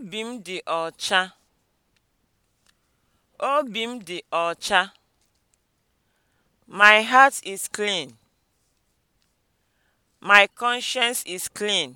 Obi m dị ọcha. Obi m dị ọcha. My heart is clean. My conscience is clean.